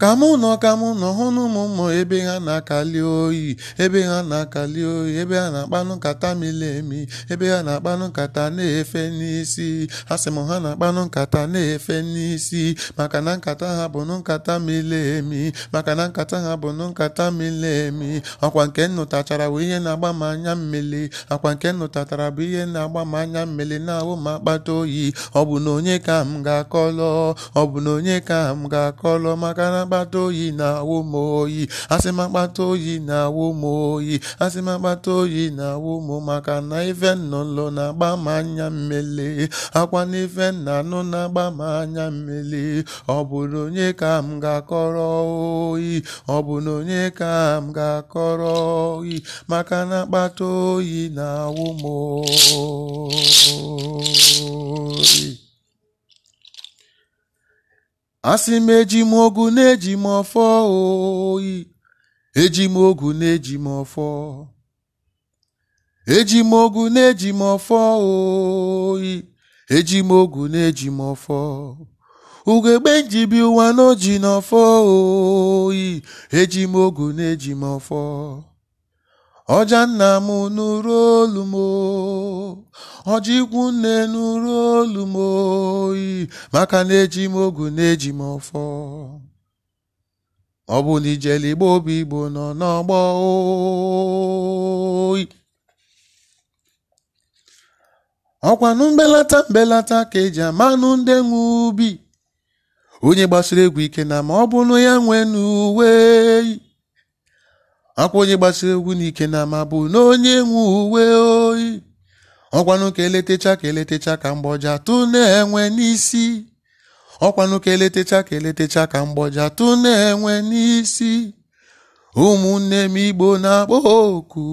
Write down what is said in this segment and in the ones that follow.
ka mụ nọ ka mụ nọ hụ na ụmụ mmụ ebe ha na-akali oyi ebe ha na-akali oyi ebe ha na-akpanụ nkata mili emi ebe ha na-akpanụ nkata na-efe n'isi a sị m ha na-akpanụ nkata na-efe n'isi maka na nkata ha bụ nkata mili emi maka na nkata ha bụ nkata mili emi ọkwa nke nnụtachara bụ ihe na-agba m anya mmili akwa nke nnụtatara bụ ihe na-agba m anya mmili na-awụ m akpata oyi ọ bụ na onye ka m ga-akọlọ ọ bụ na onye ka m ga-akọlọ maka na akpata oyi na-awụ oyi asị m akpata oyi na-awụ m oyi asị m akpata oyi na awụmụ maka na ife nnụnụ na-agba m anya mmele akwa na ife nna anụ na-agba m anya mmele ọ bụ onye ka m ga-akọrọ oyi ọ onye ka m ga-akọrọ oyi maka na akpata oyi na awụmụ oyi asị m eji m na-eji m ọfọ oyi eji m ogu na-eji m ọfọ eji m na-eji m ọfọ oyi eji m ogu na-eji m ọfọ ugegbe njibi ụwa n'oji n'ọfọ oyi eji m na-eji m ọfọ ọja nna m nụrụ olu m nne nụrụ olu oyi maka na eji m ogu na-eji m ọfọ ọ bụ na ijele igbo obi igbo nọ n'ọgbọ oyi ọkwanụ mbelata mbelata ka eji amanụ ndị nwe ubi onye gbasiri egwu ike na ma ọ bụrụ ya nwee n'uwe oyi akwa onye gbasiri egwu n'ike na ma bụ na onye nwe uwe oyi ọkwanụ ka eletecha ka eletecha ka mgbọja tụ na-enwe n'isi ọkwanụ ka eletecha ka eletecha ka mgbọja tụ na-enwe n'isi ụmụnne m igbo na-akpọ oku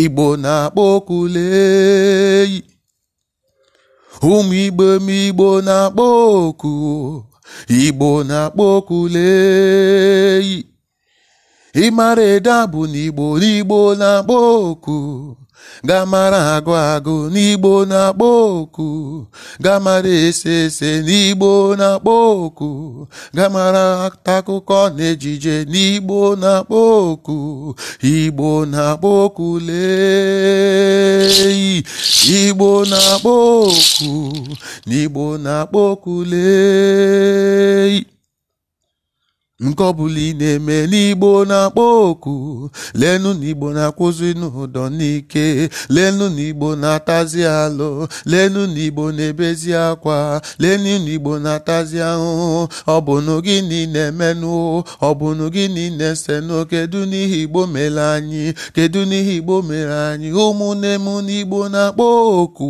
igbo na-akpọ oku leyi ụmụ igbo m igbo na-akpọ oku igbo na-akpọ oku leyi ịmara ede abụ n'igbo n'igbo na-akpọ oku gamara agụ agụ n'igbo na-akpọ oku gamara ese ese n'igbo na-akpọ oku gamara akụkọ na ejije n'igbo na-akpọ oku igbo na-akpọ oku lee igbo na-akpọ oku n'igbo na-akpọ oku lee nke ọbụla ị na-eme n'igbo na-akpọ oku lenu n'igbo na-akwụzi n'ụdọ n'ike lenu n'igbo na-atazi alụ lenu n'igbo na-ebezi akwa lenu n'igbo na-atazi ahụhụ ọbụnụ gịnị na-emenụ ọbụnụ gịnị na-esenụ kedu n'ihi igbo mere anyị kedu n'ihi igbo mere anyị ụmụnne m n'igbo na-akpọ oku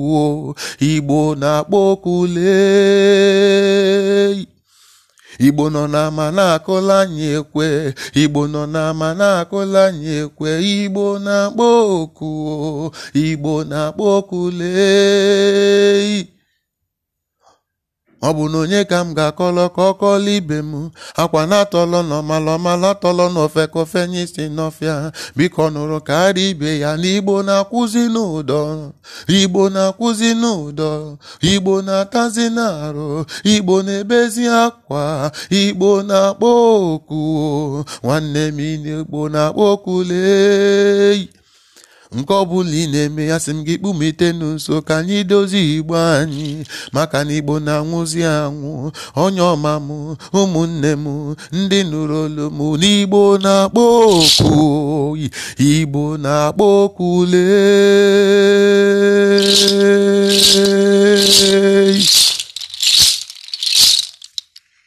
igbo na-akpọ oku lee igbo nọ n'ama na-akụla anyị ekwe igbo nọ n'ama na-akụla anyị ekwe igbo na-akpọ oku igbo na-akpọ oku lee ọ bụ na onye ka m ga-akọlọ ka ọ ibe m akwa na-atọlọ n'ọmalọma na-atọlọ n'ofe kofe nye n'ọfịa biko nụrụ karịa ibe ya na igbo na-akwụzi n'ụdọ igbo na-akwụzi n'ụdọ igbo na-atazi n'arụ igbo na-ebezi akwa igbo na-akpọ oku nwanne m igbo na-akpọ oku nke ọ bụla ị na-eme ya sị m gị kpụmitenu nso ka anyị dozie igbo anyị maka na igbo na-anwụzi anwụ onye ọma m ụmụnne m ndị nụrụ olu m n'igbo na-akpọ oku oyi igbo na-akpọ oku lee